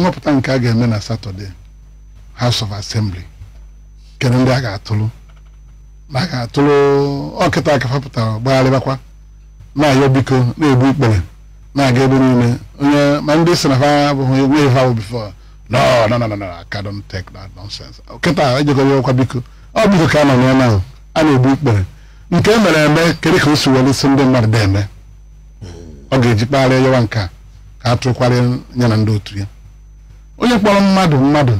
nhọpụta nke a ga-eme na satọde house of assembly kere ndị a ga atụlụ na a ga-atụrụ ọkịta akafapụtara gbagharịbakwa na-ayọ biko na-ebu ikpere na-aga ebe niile onye ma ndị si na ha abụghị enweghị ha bifo no no no no I don't take that nonsense kịta ejekọrọ ọkwa biko ọ biko ka a nọ n'ọnụ ahụ a na-ebu ikpere nke e mere eme kedu ka o si were isi ndị mmadụ da eme ọ ga-eji kpagharịa yawa nke a ka a tụkwarị ya na ndị otu ya onye kpọrọ mmadụ mmadụ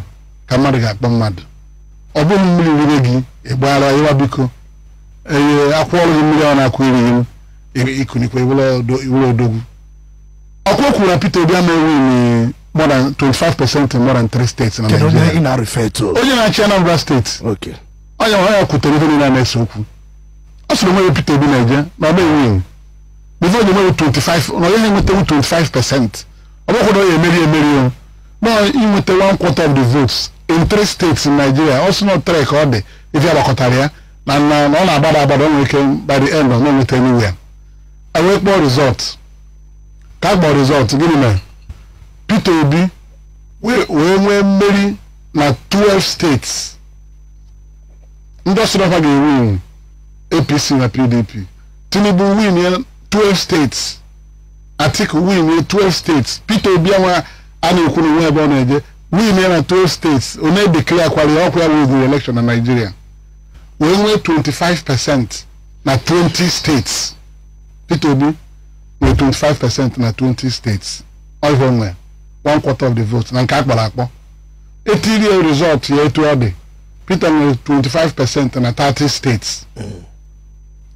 ka mmadụ ga-akpọ mmadụ ọ bụghị mmiri rire gị ịgbara ịwa biko eye akwụọrụ gị mmiri ọ na-akwụ iri gị ikunikwa iwere odogwu ọkwa kwuru na Peter Obi ama ewu more than 25 percent in more than three states na Nigeria onye na-achị Anambra steeti onye kwutere niile na-ese okwu ọ sịrị Obi na-eje na ọba ewu onye nwere 25 na onye ha enwetewu percent ọ emeri emeri inweta one quarter of the votes in three states in Nigeria also not three ka ọ dị ife agbakọtara ya na na ọ na-agbada agbada nwere ike by the end ọ na-enweta anywhere wee kpọọ result ka a kpọọ result gịnị mere Peter Obi wee nwee mmeri na twelve states ndị ọsọrọfa ga-ewin APC na PDP Tinubu win twelve states Atiku win twelve states Peter Obi enwe ana ekwuru nwa ebe ọ na-eje win na 12 states onye declare kwara ọkwa ya weziri election na Nigeria wee nwee 25 percent na 20 states Peter Obi nwee 25 percent na 20 states ọhịa nwe one quarter of the vote na nke akpọrọ akpọ etiri ya result ya etu ọ dị Peter nwere 25 percent na 30 states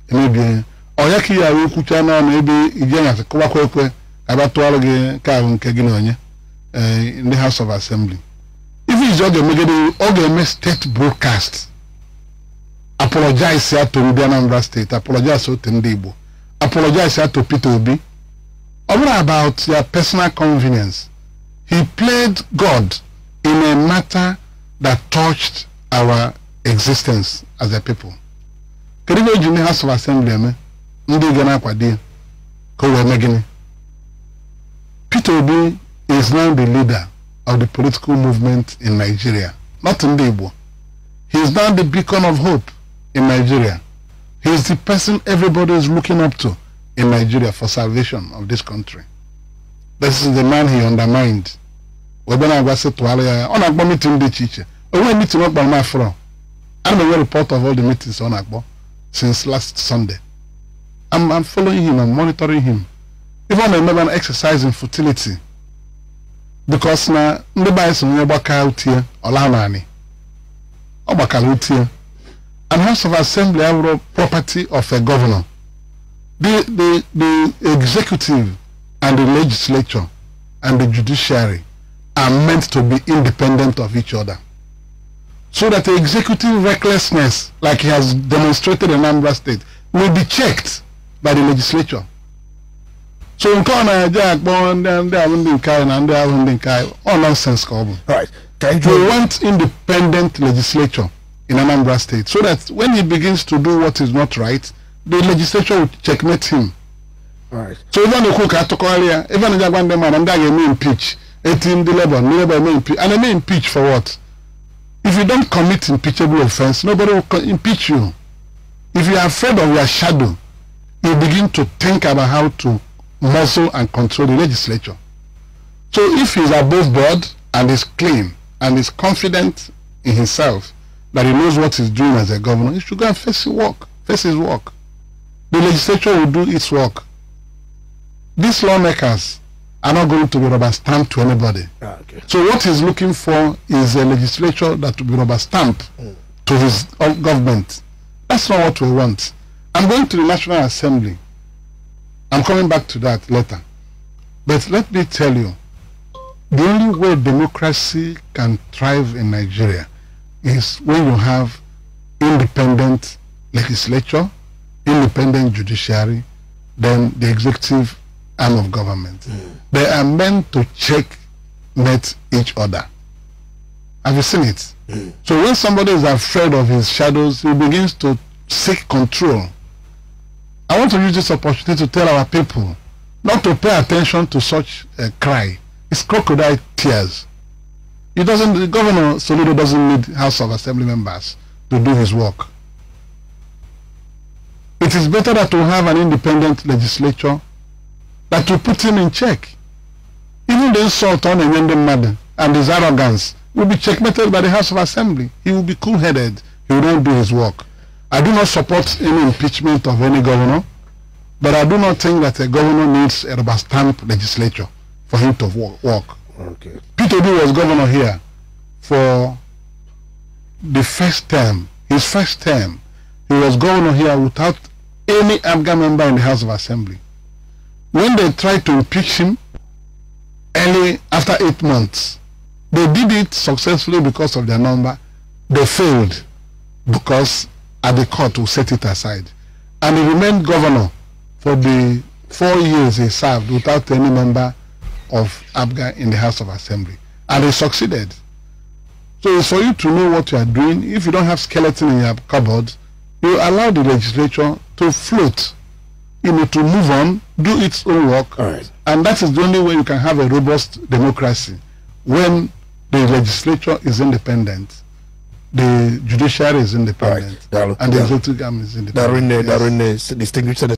emebie ya ọya ka ị ghara okwucha n'ọnụ ebe ije nyasị kọwakwa ekwe ka bịa tụọrọ gị nke ahụ nke gị na onye Eh, in the House of Assembly. If it's all the media, all the state broadcast, apologize here to Ndi Anambra State, apologize to Ndibo, apologize here to Peter Obi. All about their personal convenience. He played God in a matter that touched our existence as a people. Kedu ihe the House of Assembly eme ndị ga na-akwado ya ka o wee mee Peter Obi is now the leader of the political movement in Nigeria, not in Igbo. He is now the beacon of hope in Nigeria. He is the person everybody is looking up to in Nigeria for salvation of this country. This is the man he undermined. On Agbo meeting dị iche iche. Onwe meeting ọ kpara m afọ. I'm a report of all the meetings on Agbo since last Sunday. I'm, I'm following him, I'm monitoring him. Even I remember an fertility because na ndị be anyị so onye gbaka utie ọla naanị ọ gbakara utie and house of assembly the property of a governor the the the executive and the legislature and the judiciary are meant to be independent of each other so that the executive recklessness like he has demonstrated in Anambra state will be checked by the legislature so nke ọ na-eje akpọ ndị ahụ ndị nke anyị na ndị ahụ ndị nke anyị ọ nonsens ka ọ bụ we want independent legislature in Anambra State so that when he begins to do what is not right the legislature will checkmate him Right. so even a na-ekwu ka atụkọgharị even ebe a na-eji agwa ndị mmadụ ndị a ga-eme impeach eti ndị labour ndị labour eme impeach and eme impeach for what if you don't commit impeachable offense nobody will impeach you if you are afraid of your shadow you begin to think about how to muzzle and control the legislature. So if he's above board and is clean and is confident in himself that he knows what he's doing as a governor, he should go and face his work. Face his work. The legislature will do its work. These lawmakers are not going to be rubber stamped to anybody. Ah, okay. So what he's looking for is a legislature that will be rubber stamped mm. to his government. That's not what we want. I'm going to the National Assembly. I'm coming back to that later. But let me tell you, the only way democracy can thrive in Nigeria is when you have independent legislature, independent judiciary, then the executive arm of government. Mm. They are meant to check met each other. Have you seen it? Mm. So when somebody is afraid of his shadows, he begins to seek control I want to use this opportunity to tell our people not to pay attention to such a cry. It's crocodile tears. It doesn't, governor Soludo doesn't need House of Assembly members to do his work. It is better that we have an independent legislature that will put him in check. Even the insult on Enyende Madden and his arrogance will be checkmated by the House of Assembly. He will be cool-headed. He will not do his work. I do not support any impeachment of any governor, but I do not think that a governor needs a rubber stamp legislature for him to work. Okay. Peter B was governor here for the first term, his first term. He was governor here without any Afghan member in the House of Assembly. When they tried to impeach him early after eight months, they did it successfully because of their number. They failed because at the court to set it aside. And he remained governor for the four years he served without any member of ABGA in the House of Assembly. And he succeeded. So it's for you to know what you are doing. If you don't have skeleton in your cupboard, you allow the legislature to float, you know, to move on, do its own work. And that is the only way you can have a robust democracy when the legislature is independent the judiciary is independent right. and the executive arm is uh, independent. Uh, yes. distinguished senator.